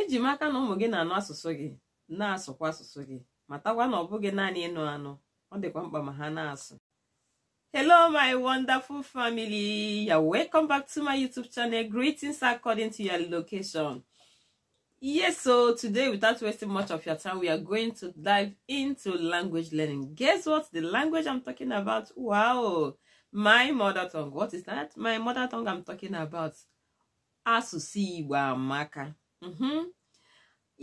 eji m aka na ụmụ gị na-anụ asụsụ gị na-asụkwa asụsụ gị matakwa na ọ bụghị naanị ịnụ anụ ọ dịkwa mkpa ma ha na-asụ Hello, my wonderful family. ya welcome back to my YouTube channel. Greetings according to your location. Yes, so today, without wasting much of your time, we are going to dive into language learning. Guess what? The language I'm talking about, wow, my mother tongue. What is that? My mother tongue I'm talking about. Asụsụ Igbo amaka. Mhm.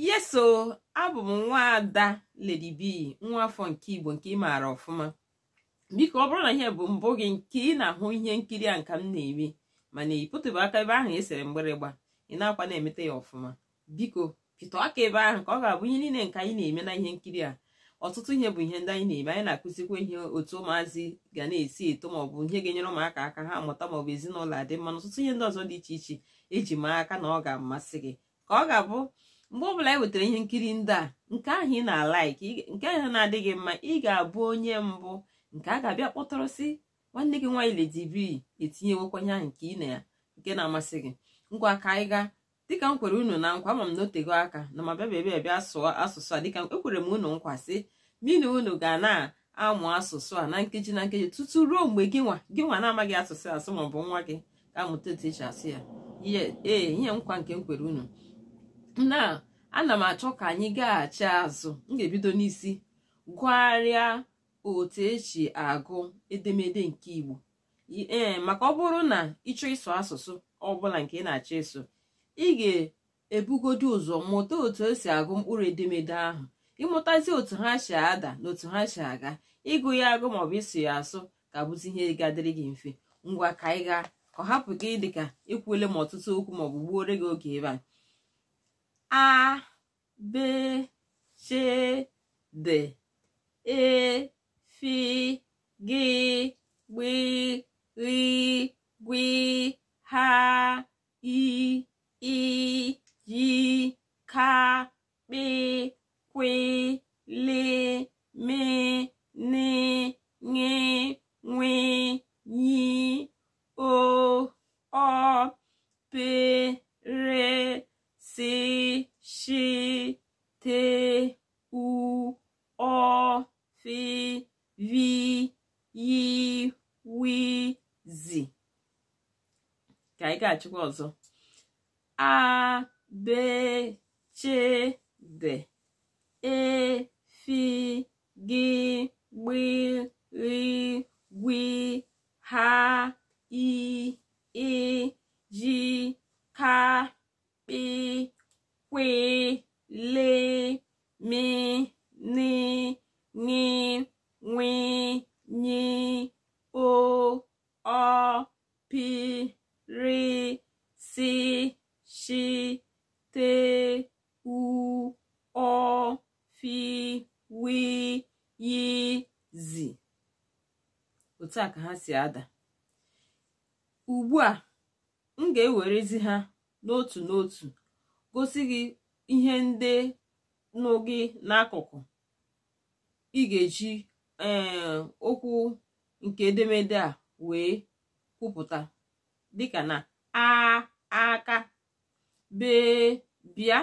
yeso abụ m nwaada Lady B nwa afọ nke Igbo nke ị maara ọfụma biko ọ bụrụ na ihe bụ mbụ gị nke ị na-ahụ ihe nkiri a nka m na eme mana ị pụtụbụ aka ebe ahụ esere mgbịrịgba ị na-akwa na-emete ya ọfụma biko pịtọ aka ebe ahụ ka ọ ga-abụ ihe niile nke anyị na-eme na ihe nkiri a ọtụtụ ihe bụ ihe ndị anyị na-eme anyị na-akụzikwa ihe otu ụmụazị ga na-esi eto maọbụ ihe ga-enyere ụmụaka aka ha mụta maọbụ ezinụlọ adị mma na ọtụtụ ihe ndị ọzọ dị iche iche eji maa aka na ọ ga-amasị gị ka ọ ga-abụ mgbe ọbụla ị e wetara ihe nkiri ndị a nke ahụ ị na-alaiki nke ahụ na-adịghị mma ị ga-abụ onye mbụ nke a ga-abịa kpọtọrọ si nwanne gị nwaanyị Lady etinye etinyewekwanye ahụ nke ị na ya nke na-amasị gị ngwa ka anyị gaa dịka m kwere unu na nkwa ama m gị aka na ma bịa bịa bịa sụọ asụsụ a dịka ekwere m unu nkwa sị mina unu ga na-amụ asụsụ a na nkeji na nkeji tutu ruo mgbe gị nwa gị nwa na-amaghị asụsụ asụ ma ọ bụ nwa gị ga-amụta otu eji asụ ya ee ihe nkwa nke m kwere unu na ana m achọ ka anyị gaghachi azụ m ga-ebido n'isi gụgharịa otu eji agụ edemede nke Igbo ee eh, maka ọ bụrụ na ịchọ ịsụ asụsụ ọbụla nke ị na-achọ ịsụ ị ga-ebugodi ụzọ mụta otu e si agụ mkpụrụ edemede ahụ ịmụtazi otu ha si ada na otu ha si aga ịgụ ya agụ maọbụ ịsụ ya asụ ka bụzi ihe ga-adịrị gị mfe ngwa ka anyị gaa ka ọ hapụ gị dịka ikwuole ma ọtụtụ okwu maọbụ gbuore gị oge ebe a A, B, C, D. E, F, G, W, R, G, H, I, I, J, K, B, Q, L, M, N, N, W, anyị ga-achịkwa ọzọ abechede efi gị gbirigwi ha iji ka kpi kwile mi ni ni nwi nyi o ọ e, e, pi rị sị shi te u ọ fi wi yi zi otu a ka ha si ada ugbu a m ga-ewerezi ha n'otu n'otu gosi gị ihe ndị nụ gị n'akụkụ ị ga-eji eh, okwu nke edemede a wee kwupụta dịka na a aka bee bịa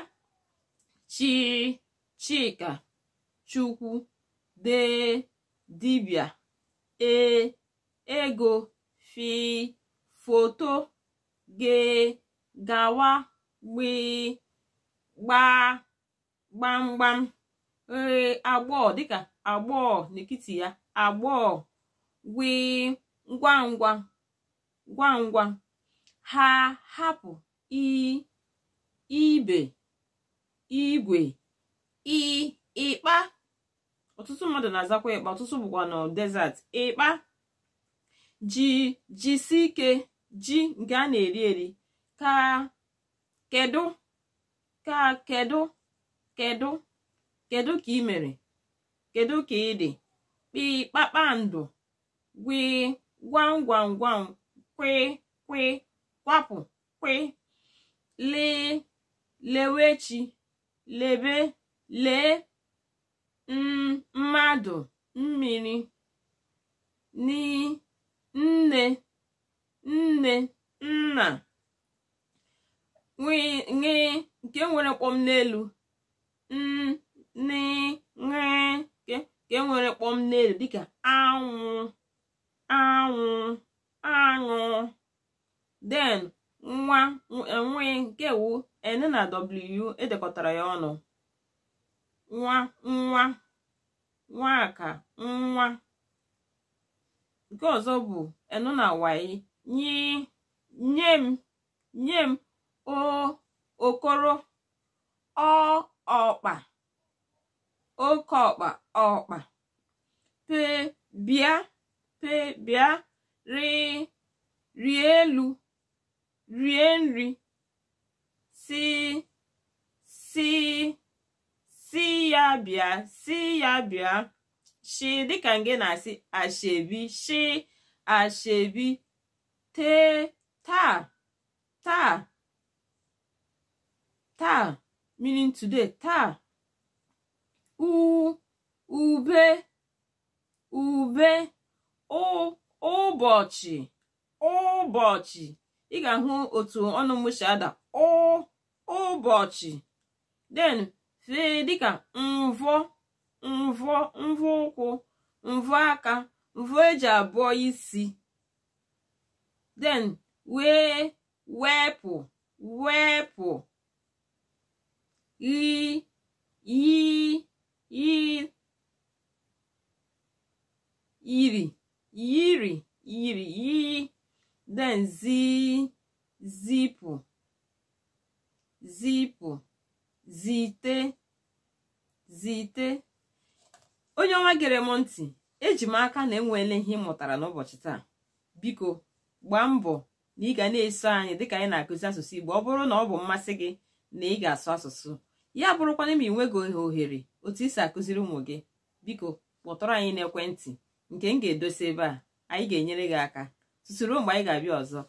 chi chika chukwu dee dibịa ee ego fi foto gị gawa gbee gbaa gbamgbam ee agbọọ dịka agbọọ n'etiti ya agbọọ gwi ngwa ngwa ngwa ngwa ha hapụ ibe igwe ịkpa ọtụtụ mmadụ na-azakwa ikpa ọtụtụ bụkwa na desert ịkpa ji jisi ike ji nke a na-eri eri ka kedu ka kedu kedu kedu ka ị mere kedu ka ị dị kpị kpakpando gwi gwam gwam gwam kwe kwe kwapụ kwee lee lewechi lebe lee mm, mmadụ mmiri nne nne nna nwee nke nwere mkpọm n'elu mm, nke nwere n'elu dịka anwụ anwụ aṅụ den nwa enweghị nke wu n na w edekọtara ya ọnụ nwa nwa nwa aka nwa nke ọzọ bụ n na y nye m nye m okoro ọkpa oke ọkpa ọkpa pe bịa pe bịa rịị. rịa elu rie nri si si si ya bịa si ya bịa shi dịka nge na-asị ashebi shi ashebi te taa taa taa meaning today taa u ube ube o ụbọchị ụbọchị ị ga-ahụ otu ọnụ m ada ụbọchị den fee dịka mvọ mvọ mvọ ụkwụ mvọ aka mvọ eji abụọ isi den wee wepụ wepụ yi yi yi yiri yiri yiri iyi then zi zipụ zipụ zite zite onye ọma gere m ntị eji m aka na enweela ihe ị mụtara n'ụbọchị taa biko gbaa mbọ na ị ga na-eso anyị dịka anyị na-akụzi asụsụ Igbo ọ bụrụ na ọ bụ mmasị gị na ị ga-asụ asụsụ ya bụrụkwana ma ị nweghị ohere otu isi akụziri ụmụ gị biko kpọtụrụ anyị n'ekwentị nke m ga-edosi ebe a anyị ga-enyere gị aka susuru mgbe anyị ga-abịa ọzọ